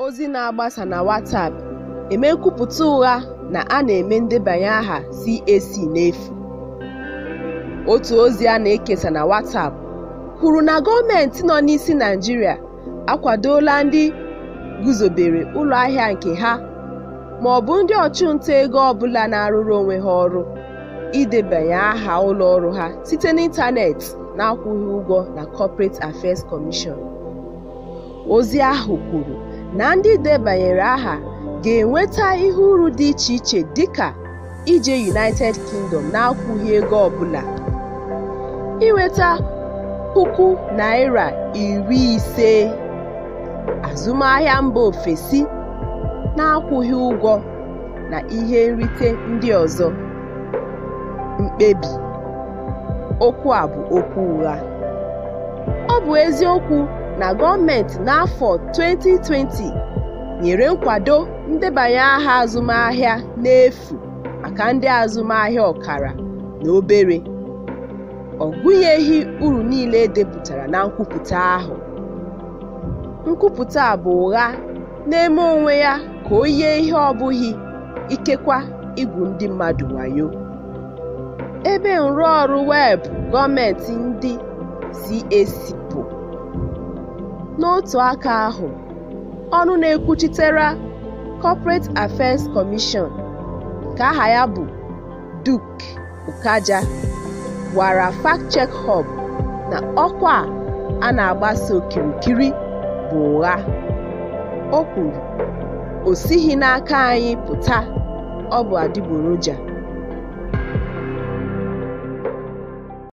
ozi na-agbasa na WhatsApp eme nkwupụta ụgha na a na-eme ndebanye aha CAC n'efu. Otu ozi a na-ekesa na WhatsApp kwuru na gọọmentị nọ n'isi Naijiria akwadola ndị guzobere ụlọ ahịa nke ha ma ọ bụ ndị ọchụnta ego ọbụla na-arụrụ onwe ha ọrụ idebanye aha ụlọ ọrụ ha site na-akwụghị ụgwọ na Corporate Affairs Commission. Ozi ahụ kwuru na ndị debanyere aha ga-enweta ihe uru dị iche iche dịka ije United Kingdom na-akwụghị ego ọbụla, inweta puku naira iri ise azụmahịa mba ofesi na-akwụghị ụgwọ na ihe nrite ndị ọzọ. Mkpebi: Okwu a bụ okwu ụgha. Ọ bụ eziokwu na gọọmentị n'afọ 2020 nyere nkwado ndebanye aha azụmahịa n'efu maka ndị azụmahịa ọkara na obere, ọ gụnyeghị uru niile edepụtara na nkwupụta ahụ. Nkwupụta bụ ụgha na-eme onwe ya ka o yie ihe ọ bụghị, ikekwa igwu ndị mmadụ wayo. Ebe nrụọrụ weebụ gọọmentị ndị CAC bụ N'otu aka ahụ, ọnụ na-ekwuchitere Corporate Affairs Commission ka aha ya bụ Duke ukaja gwara Fact-Check Hub na ọkwa a na-agbasa okirikiri bụ ụgha. O kwuru, “O sighi n'aka anyị pụta, ọ bụ adịgboroja.